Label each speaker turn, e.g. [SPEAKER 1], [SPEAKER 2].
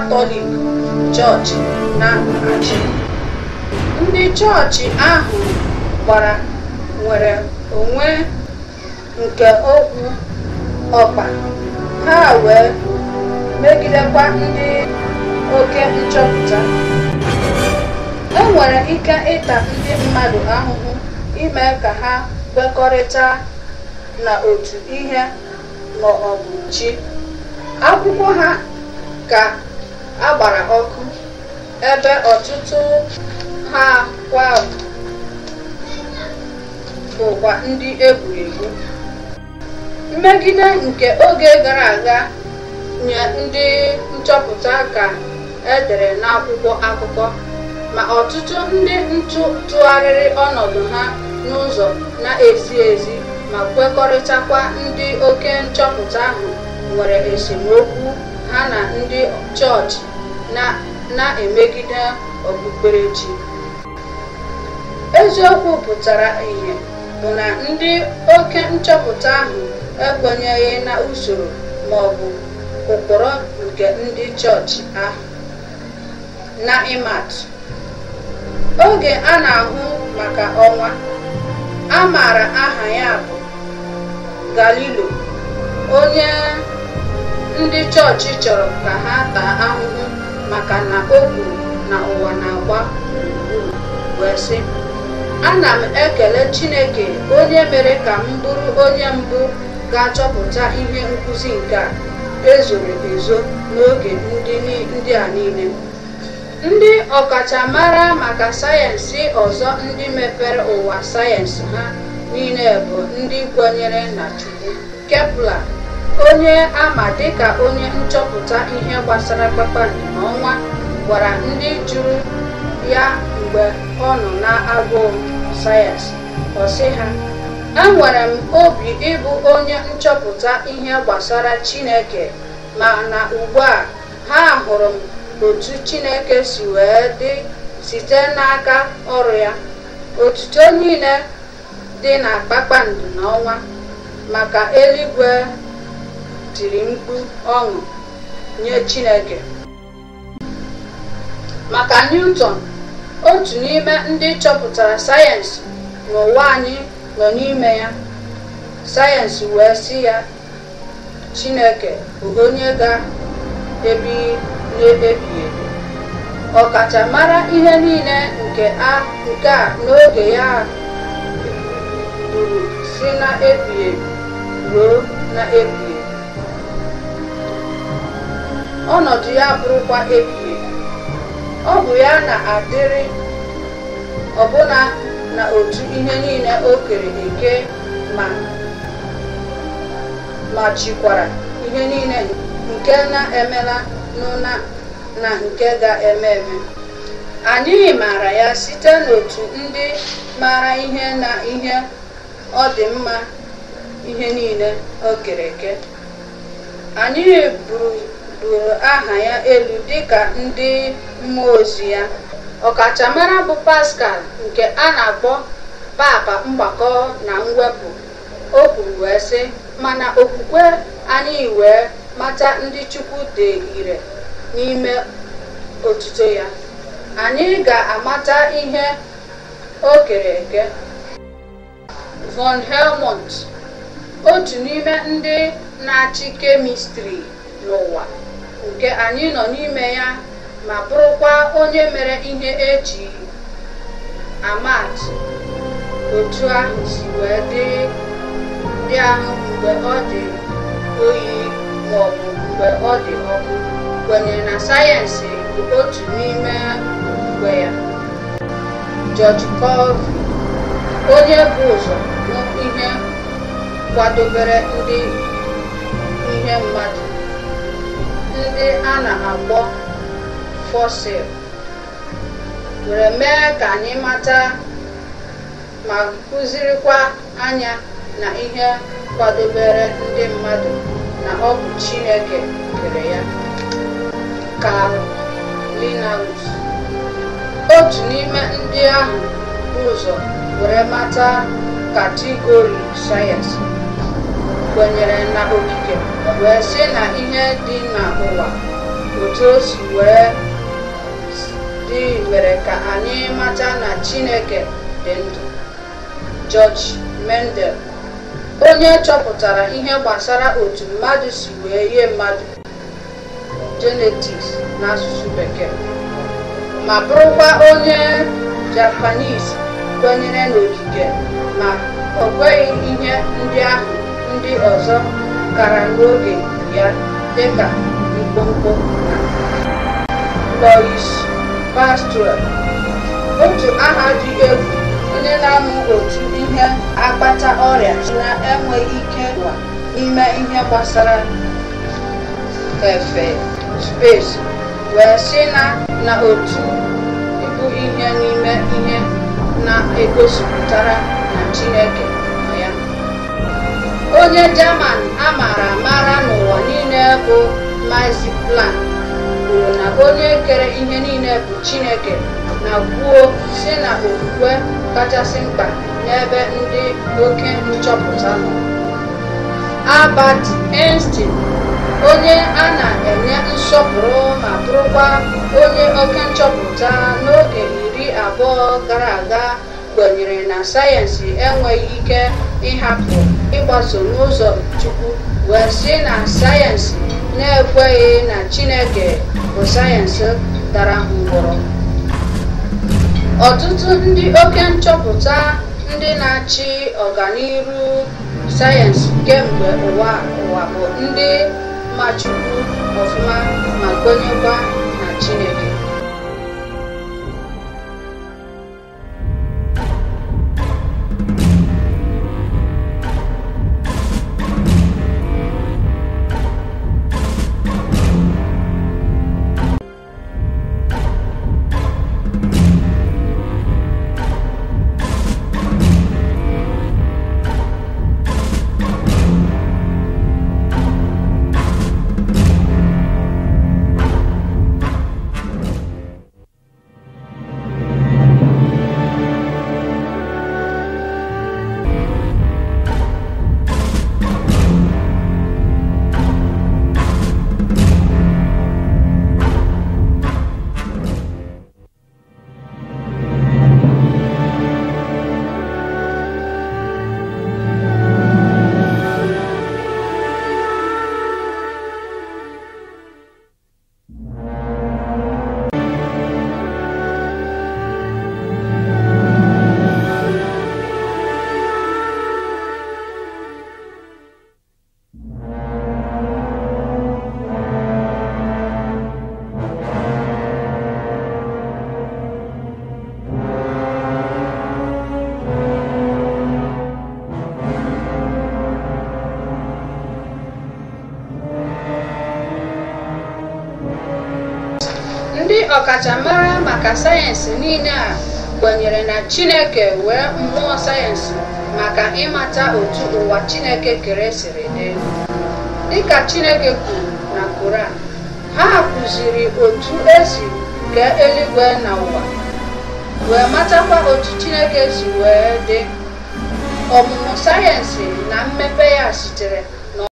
[SPEAKER 1] Katọlik chọọchị na-achị. Ndị chọọchị ahụ gbara nwere onwe nke okwu ọkpa ha wee megidekwa ndị oke nchọpụta. enwere ike ịta ndị mmadụ ahụhụ ime ka ha kwekọrịta otu ihe ma ọ bụ chi. Akwụkwọ ha ka agbara ọkụ ebe ọtụtụ ha kwa bụkwa ndị egwuregwu egwu mmegide nke oge gara aga nye ndị nchọpụta ka edere n'akwụkwọ akụkọ ma ọtụtụ ndị ntụgharịrị ọnọdụ ha n'ụzọ na-ezi ezi ma kwekọrịtakwa ndị oke nchọpụta ahụ nwere esemokwu ha na ndị chọọchị na-emegide okpukperechi. Eziokwu pụtara ihe bụ na ndị oke nchọpụta ahụ ekwenyeghị na usoro ma ọ bụ ụkpụrụ nke ndị chọọchị ahụ. Na imat oge a na-ahụ maka ọnwa, a maara aha ya bụ galileo onye ndị chọọchị chọrọ ka ha taa ahụhụ maka na o buru na ụwa na-agba gburugburu wee sị ana m ekele Chineke onye mere ka m bụrụ onye mbụ ga-achọpụta ihe nkụzi nke a ezoro ezo n'oge ndị a niile ndị ọkachamara maka sayensị ọzọ ndị mepere ụwa sayensị ha niile bụ ndị kwenyere na Chukwu Kepler onye ama dịka onye nchọpụta ihe gbasara kpakpando n'ọnwa gwara ndị jụrụ ya mgbe ọ nọ na-agụụ sayensị ọ ha enwere m obi ịbụ onye nchọpụta ihe gbasara Chineke ma na ugbu a ha hụrụ m otu Chineke si wee dị site n'aka ọrụ ya otuto niile dị na kpakpando n'ọnwa maka eluigwe tiri mkpu ọṅụ nye Chineke maka Newton otu n'ime ndị chọpụtara sayensị n'ụwa anyị nọ n'ime ya sayensị wee si ya Chineke bụ onye ga-ebighị n'ebighị ebi ọkachamara ihe niile nke a nke a n'oge ya bụrụ si na ebighị ebi ruo na ebighị ọnọdụ ya bụrụkwa ebighị ọ bụ ya na-adịrị ọbụla na otu ihe niile o kere eke ma ma chikwara ihe niile nke na-emela na nke ga-eme eme anyị maara ya site n'otu ndị mara ihe na ihe ọ dị mma ihe niile o kere eke anyị buru buliri aha ya elu dịka ndị mmụọ ozi ya ọkachamara bụ paskal nke a na-akpọ papa mgbakọ na mwepụ o kwuru wee sị mana okwukwe anyị wee mata ndị Chukwu dị ire n'ime otuto ya anyị ga-amata ihe o kere eke von Helmont otu n'ime ndị na-achị kemistri n'ụwa nke anyị nọ n'ime ya ma bụrụkwa onye mere ihe eji amat otu ahụ si wee dị ahụ mgbe ọ dị oyi maọbụ mgbe ọ dị ọkụ kwenyere na sayensị bụ otu n'ime mgbe ya George Colvin onye bụ ụzọ ihe kwadobere ndị ihe mmadụ ndị a na-akpọ fosil were mee ka anyị mata ma kụzirikwa anya na ihe kwadobere ndị mmadụ na ọ bụ Chineke kere ya ka otu n'ime ndị ahụ ụzọ were mata katigori sayensị kwenyere na okike wee sị na ihe dị n'ụwa otu o si wee dị mere ka anyị mata na chineke dị ndụ George Mendel onye chọpụtara ihe gbasara otu mmadụ si wee ihe mmadụ na n'asụsụ bekee ma bụrụkwa onye Japanese kwenyere n'okike ma o kweghị ihe ndị ahụ ndị ọzọ gara n'oge ya dịka Mkpomkpo Louis Pasteur otu aha dị egwu ndị na-amụ otu ihe akpata ọrịa na-enweghị ike ime ihe gbasara efe space wee si na na otu bụ ihe n'ime ihe na-egosipụtara na Chineke onye German a mara amara n'ụwa niile bụ Max Planck kwuru na onye kere ihe niile bụ Chineke na kwuo si na okwukwe kachasị mkpa n'ebe ndị oke nchọpụta nọ Albert Einstein onye a na-enye nsọpụrụ ma bụrụkwa onye oke nchọpụta n'oge iri abụọ gara aga kwenyere na sayensị enweghị ike ịhapụ ịgbaso n'ụzọ Chukwu wee sị na sayensị na-ekweghị na Chineke bụ sayensị dara ngwọrọ ọtụtụ ndị oke nchọpụta ndị na-achị ọganihu sayensị kemgbe ụwa ụwa bụ ndị machukwu ọfụma ma kwenyekwa ọkachamara maka sayensị niile a kwenyere na chineke wee mmụọ sayensị maka ịmata otu ụwa chineke kere siri dị dịka chineke kwuru na koran ha kụziri otu esi kee eluigwe na ụwa wee matakwa otu chineke si wee dị ọmụmụ sayensị na mmepe ya sitere